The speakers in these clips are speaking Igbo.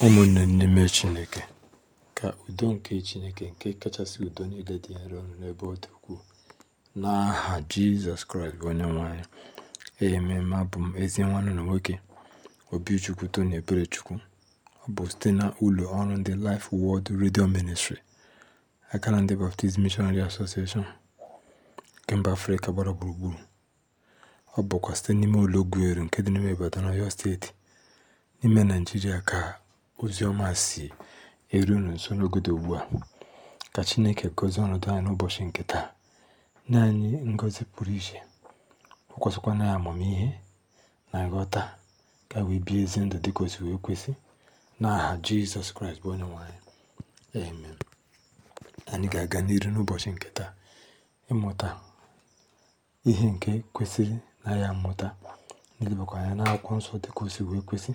Ụmụnne n'ime Chineke, ka udo nke Chineke nke kachasị udo niile dị nro n'ebe ọ dị ukwuu, n'aha Jizọs Kraịst bụ Onyenwe anyị. Amen. Abụ m ezi nwanne na nwoke Obichukwu ebere Eberechukwu. Ọ bụ site na ụlọ ọrụ ndị Life Word redio Ministry, aka na ndị Baptist mishonary Association nke mba Afrịka gbara gburugburu. Ọ bụkwa site n'ime ụlọ Ogueru nke dị n'ime Ibadan, Ọyọ Steeti, n'ime naijiria ka ozi ọma si eru unu nso n'oge ugbu a. Ka Chineke gozi ọnọdụ anyị n'ụbọchị nke taa, nye anyị ngọzi pụrụ iche, ọ kwụsịkwana amamihe na nghọta ka wee bie ezi ndụ dị o wee kwesị n'aha Jizọs Kraịst bụ onye nwanyị anyị. Amen. Anyị ga-aga n'iru n'ụbọchị nke taa ịmụta ihe nke kwesịrị na ya mmụta n'ilebakwa anya n'akwụkwọ nsọ dịka o wee kwesị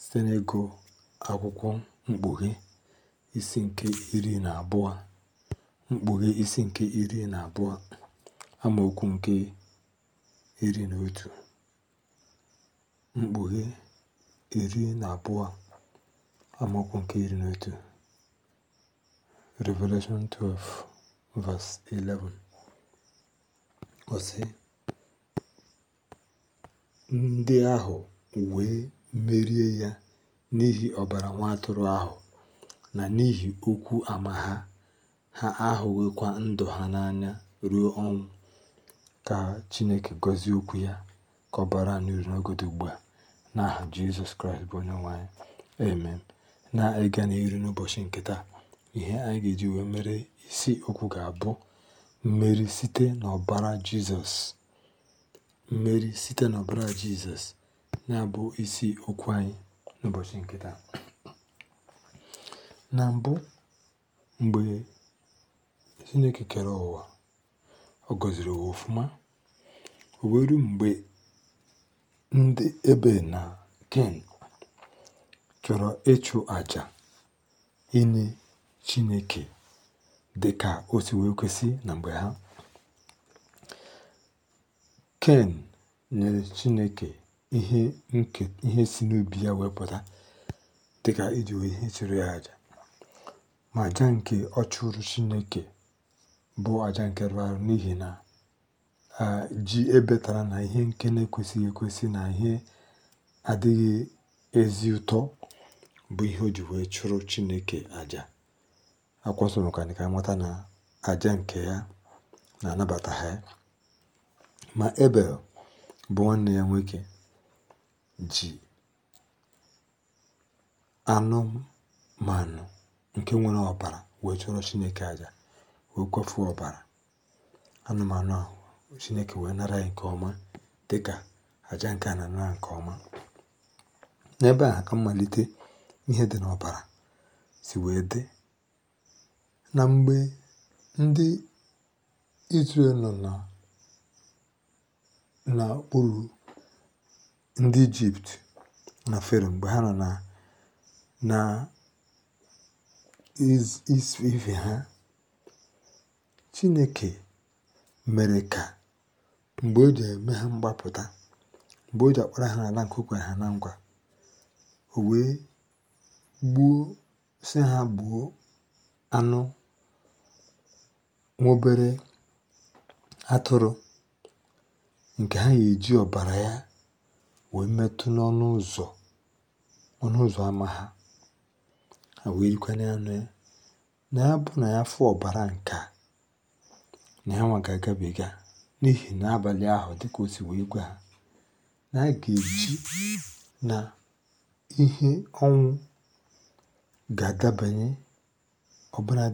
site n'ego. akwụkwọ Mkpughe isi nke iri na abụọ Mkpughe isi nke iri na abụọ amaokwu nke iri na otu Mkpughe iri na abụọ amaokwu nke iri na otu Revelation 12 verse 11 ọ ndị ahụ wee merie ya n'ihi ọbara nwa atụrụ ahụ, na n'ihi okwu ama ha, ha ahụwekwa ndụ ha n'anya ruo ọnwụ. Ka Chineke gọzie okwu ya, ka ọbara n'uru n'ogodo ugbu n'aha Jizọs Kraịst bụ onye nwanyị Amen. Na-ịga n'iru n'ụbọchị nke taa, ihe anyị ga-eji wee mere isi okwu ga-abụ mmeri site n'ọbara Jizọs. Mmeri site n'ọbara Jizọs, ya bụ isi okwu anyị. nke taa. Na mbụ, mgbe Chineke kere ụwa, ọ gọziri ụwa ofuma O mgbe ndị ebe na Ken chọrọ ịchụ aja inye Chineke dị ka o si wee kwesị na mgbe ha. Ken nyere Chineke ihe nke ihe si n'ubi ya wee pụta dịka iji ihe chụrụ ya aja ma aja nke ọ chụrụ Chineke bụ aja nke rụrụ arụ n'ihi na ji ebetara na ihe nke na-ekwesịghị ekwesị na ihe adịghị ezi ụtọ bụ ihe o ji wee chụrụ Chineke àjà akwasoro ka ka mata na aja nke ya na-anabata ha ma Ebel bụ nwanne ya nwoke ji anụmanụ nke nwere ọbara wee chụọrọ Chineke aja wee kwefu ọbara anụmanụ ahụ Chineke wee nara ya nke ọma dị ka aja nke a anara nke ọma n'ebe a ka mmalite ihe dị n'ọbara si wee dị na mgbe ndị Izrel nọ n'okpuru ndị Ijipt na Fero mgbe ha nọ na na ife ha Chineke mere ka mgbe o ji eme ha mgbapụta mgbe o ji akpọrọ ha n'ala nke ha na ngwa o wee gbuo si ha gbuo anụ nwobere atụrụ nke ha ga-eji ọbara ya wee metụ n'ọnụ ụzọ ọnụ ụzọ ámá ha ha wee rikwanye ya ya na ya bụ na ya fụ ọbara nke a na ya nwa ga-agabiga n'ihi na abalị ahụ dịka o si wee gwa ha na a ga-eji na ihe ọnwụ ga-adabanye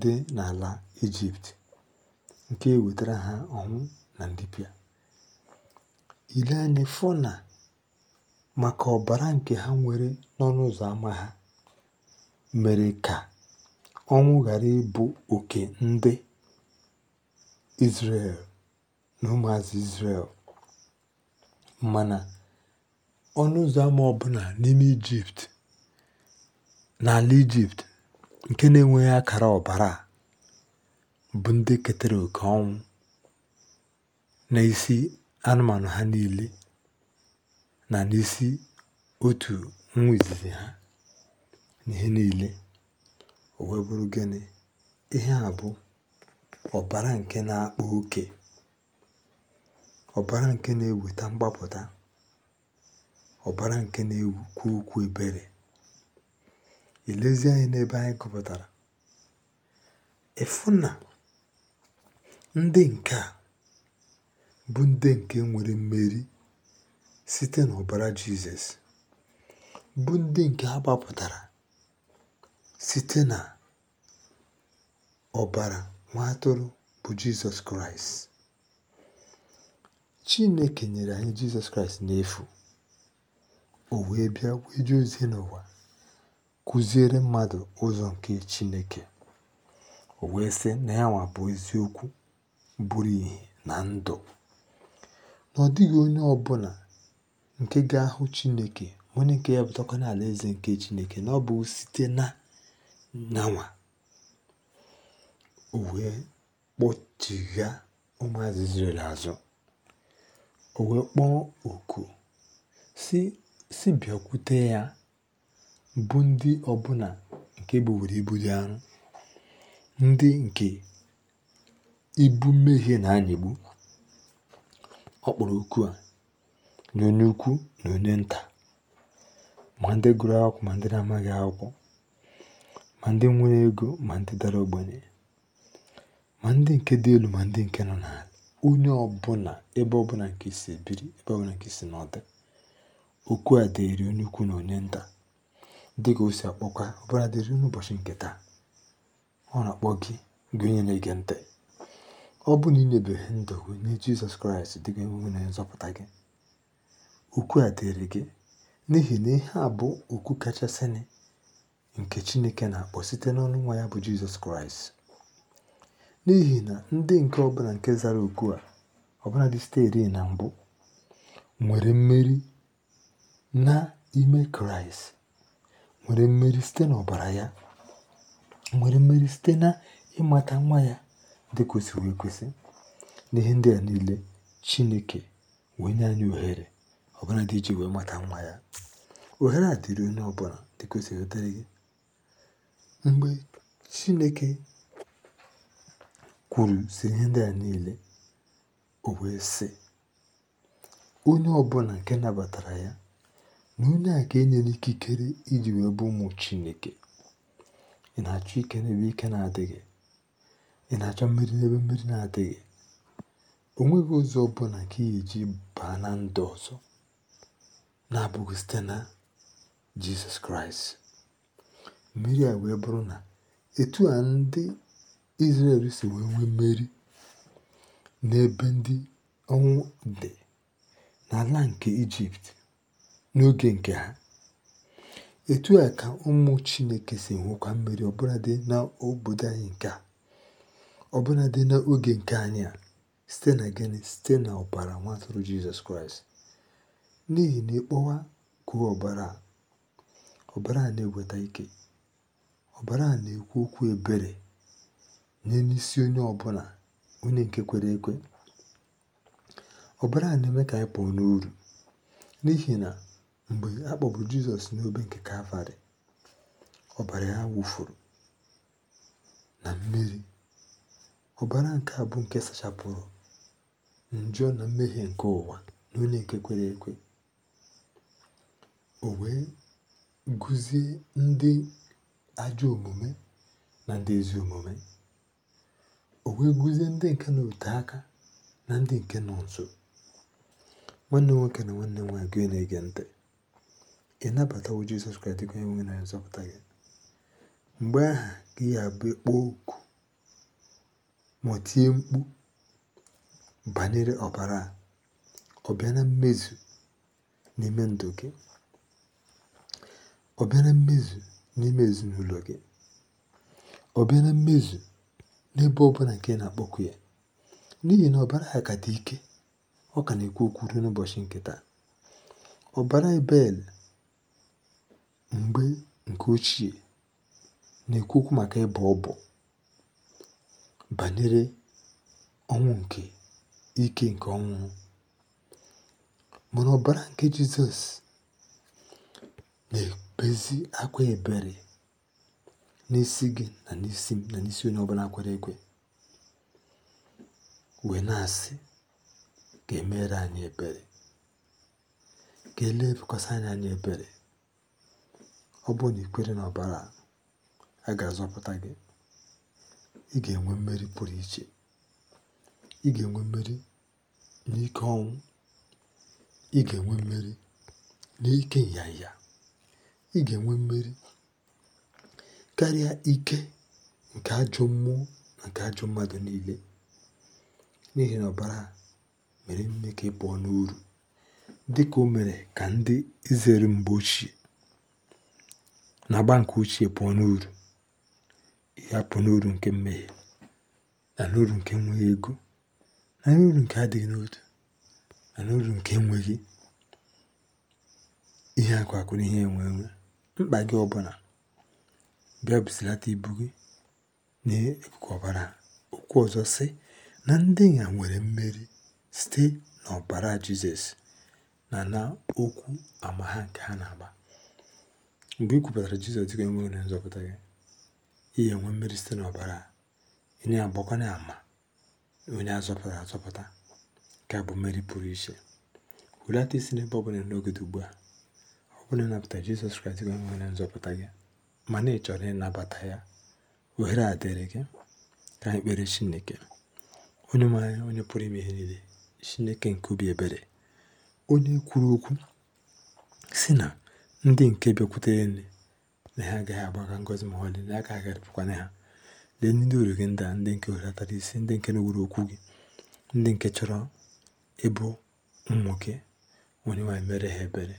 dị n'ala Ijipt nke e wetara ha ọnwụ na ndịpịa ile anyị fọ na maka ọbara nke ha nwere n'ọnụ ụzọ ámá ha mere ka ọnwụ ghara ịbụ oke ndị Izrel na ụmụazị Izrel. Mana ọnụ ụzọ ámá ọbụla n'ime Ijipt, n'ala Ijipt nke na-enweghị akara ọbara bụ ndị ketara oke ọnwụ n'isi anụmanụ ha niile. na n'isi otu nwa izizi ha n'ihe niile o wee bụrụ gịnị ihe a bụ ọbara nke na-akpa oke ọbara nke na-eweta mgbapụta ọbara nke na-ekwu okwu ebere elezi anyị n'ebe anyị gụpụtara efu na ndị nke a bụ ndị nke nwere mmeri site n'ọbara Jizọs, bụ ndị nke a gbapụtara site n'ọbara ọbara Nwa Atụrụ bụ Jizọs Kraịst. Chineke nyere anyị Jizọs Kraịst n'efu, o wee bịa wee jee ozi n'ụwa kụziere mmadụ ụzọ nke Chineke, o wee sị na ya nwa bụ eziokwu bụrụ ihe na ndụ, na dịghị onye ọbụla Nke ga-ahụ chineke ma onye ǹke ya na-eze nke Chineke na ọ bụ site na nawa o wee kpọchigha ụmụazụ Izrel azụ o wee kpọọ oku si si bịakwute ya bụ ndị ọbụla nke buwere ibu dị arụ, ndị nke ibu mmehie na-anyịgbu ọ kpọrọ oku a na onye ukwu na onye nta ma ndị gụrụ akwụkwọ ma ndị na-amaghị akwụkwọ ma ndị nwere ego ma ndị dara ogbenye ma ndị nke dị elu ma ndị nke nọ n'ala onye ọbụla ebe ọbụla nke si ebiri ebe ọbụla nke si n'ọdị okwu a dịrị onye ukwu na onye nta dị ka o si akpọkwa ọbụla dịrị n'ụbọchị nke taa ọ na-akpọ gị gị onye na-ege ntị ọ bụ na inyebeghị ndụ gị nye Jizọs Kraịst dị ka na nzọpụta gị okwu a dịrị gị n'ihi na ihe a bụ okwu kachasịnị nke Chineke na-akpọ site n'ọnụ nwa ya bụ Jizọs Kraịst n'ihi na ndị nke ọbụla nke zara okwu a ọbụla dị site na mbụ nwere mmeri n'ime Kraịst nwere mmeri site n'ọbara ya nwere mmeri site na ịmata nwa ya dị kwesịrị ekwesị n'ihe ndị a niile Chineke wee nye anyị ohere dị iji wee mata nwa ya ohere a dịrị onye ọbụla dịka gị mgbe chineke kwuru si ihe ndị a niile o wee sị onye ọbụla nke nabatara ya na onye a ka enyere ikikere iji wee bụ ụmụ chineke ị na-achọ ike n'ebe ike na-adịghị ị na-achọ mmiri n'ebe mmiri na-adịghị o nweghị ụzọ ọbụla ka ị eji baa na ndụ ọzọ na-abụghị site na Jizọs Kraịst mmiri a wee bụrụ na etu a ndị Izrel si wee nwee mmeri n'ebe ndị ọnwụ dị n'ala nke Ijipt n'oge nke ha etu a ka ụmụ Chineke si nwekwa mmeri ọbụladị n'obodo anyị nke a ọbụladị n'oge nke anyị a site na gịnị site na ọbara nwa Jizọs Kraịst n'ihi na ịkpọwa kwuo ọbara ọbara a na-eweta ike ọbara a na-ekwu okwu ebere nye n'isi onye ọbụla onye nke kwere ekwe ọbara a na-eme ka anyị pụọ n'uru n'ihi na mgbe a kpọbụ Jizọs n'obe nke Kalvarị ọbara ya wụfuru na mmiri ọbara nke a bụ nke sachapụrụ njọ na mmehie nke ụwa na onye nke kwere ekwe o wee guzie ndị ajọ omume na ndị ezi omume o wee guzie ndị nke na ote aka na ndị nke nọ nso nwanne nwoke na nwanne nwaanyị gị na-ege ntị ị nabatawo Jizọs Kraịst dịka onye nwe na nzọpụta gị mgbe aha gị abụ kpọọ oku ma tie mkpu banyere ọbara ọ bịa na mmezu n'ime ndụ gị obere mmezu n'ime ezinụlọ gị obere bịara mmezu n'ebe ọbụla nke na-akpọku ya n'ihi na ọbara ha ka dị ike ọ ka na-ekwu okwu ruo n'ụbọchị nke taa ọbara ebel mgbe nke ochie na-ekwu okwu maka ịbọ ọbọ banyere ọnwụ nke ike nke ọnwụ mana ọbara nke jizọs ezi akwa ebere n'isi gị na n'isi m na n'isi onye ọbụla kwere ekwe wee na-asị ka emere anyị ebere ka elee anyị anyị ebere ọ bụrụ na ikwere na ọbara a ga-azọpụta gị ị ga-enwe mmeri pụrụ iche ị ga-enwe mmeri n'ike ọnwụ ị ga-enwe mmeri n'ike nyanya ị ga-enwe mmeri karịa ike nke ajọ mmụọ na nke ajọ mmadụ niile n'ihi na ọbara mere mme ka ị pụọ n'uru dị ka o mere ka ndị izere mgbe ochie na agba nke ochie pụọ n'uru ya pụọ n'uru nke mmehie na n'uru nke enweghị ego na n'uru nke adịghị n'otu na n'uru nke enweghị ihe akụ akụ na ihe enwe enwe mkpa gị ọbụla bịa busilata ibu gị n'ikuku ọbara okwu ọzọ sị na ndị ya nwere mmeri site n'ọbara jizọs na na okwu ama ha nke ha na-agba mgbe ị kwupụtara jizọs dịka enweghị na nzọpụta gị ihe enwe mmeri site n'ọbara onye agbakwana ama onye azọpụtara azọpụta nke bụ mmeri pụrụ iche hulata isi n'ebe ọ bụla n'oge ugbu a onye nabata Jizọs Kraịst gị nwere nzọpụta gị mana ị chọrọ ịnabata ya ohere a dịrị gị ka anyị kpere Chineke onye nwanyị onye pụrụ ime ihe niile Chineke nke obi ebere onye kwuru okwu si na ndị nke bịakwutere nne na ha agaghị agbaga ngọzi ma ọlị na aka agharịpụkwana ha lee ndị uru gị ndị a ndị nke welatara isi ndị nke na-ewuru okwu gị ndị nke chọrọ ịbụ ụmụ gị onye nwanyị mere ha ebere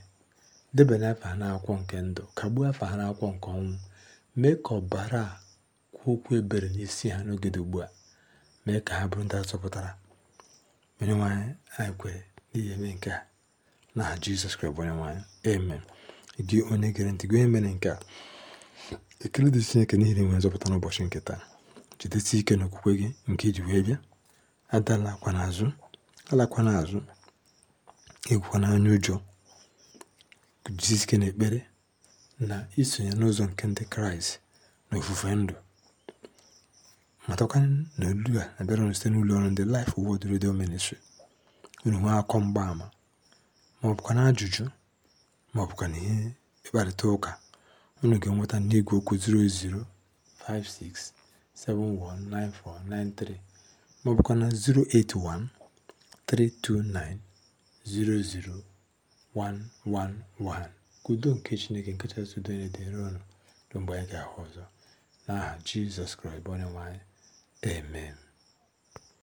Debanye afọ ha n'akwụkwọ nke ndụ, kagbuo afa ha n'akwụkwọ nke ọnwụ. Mee ka ọbara a kwuo okwu ebere n'isi ha n'oge dị ugbu a. Mee ka ha bụrụ ndị azọpụtara. onye anyị, anyị kwere n'ihi eme nke a n'aha Jizọs Kraịst bụ Onyenwe anyị. Amen. Gị onye gere ntị, gị onye mere nke a. Ekele dị Chineke n'ihi inwe nzọpụta n'ụbọchị nke taa. Jidesi ike n'okwukwe gị nke iji wee bịa. Adala akwa n'azụ. Alakwana azụ. Egwukwana anya ụjọ. guzosie ike n'ekpere na isonye n'ụzọ nke Ndị Kraịst na ofufe ndụ matakwa na olu a na-abịara site n'ụlọ ọrụ ndị Life Word Radio Ministry unu nwee akọ mgbaama ma ọ bụkwa na ajụjụ ma ọ bụkwa na ihe ịkparịta ụka unu ga-enweta n'igwe okwu 0056719493 ma 081 329 111. Ka udo nke Chineke nke kachasị udo niile dịrị unu mgbe anyị ga-ahụ ọzọ n'aha Jizọs Kraịst bụ nwanyị. Amen.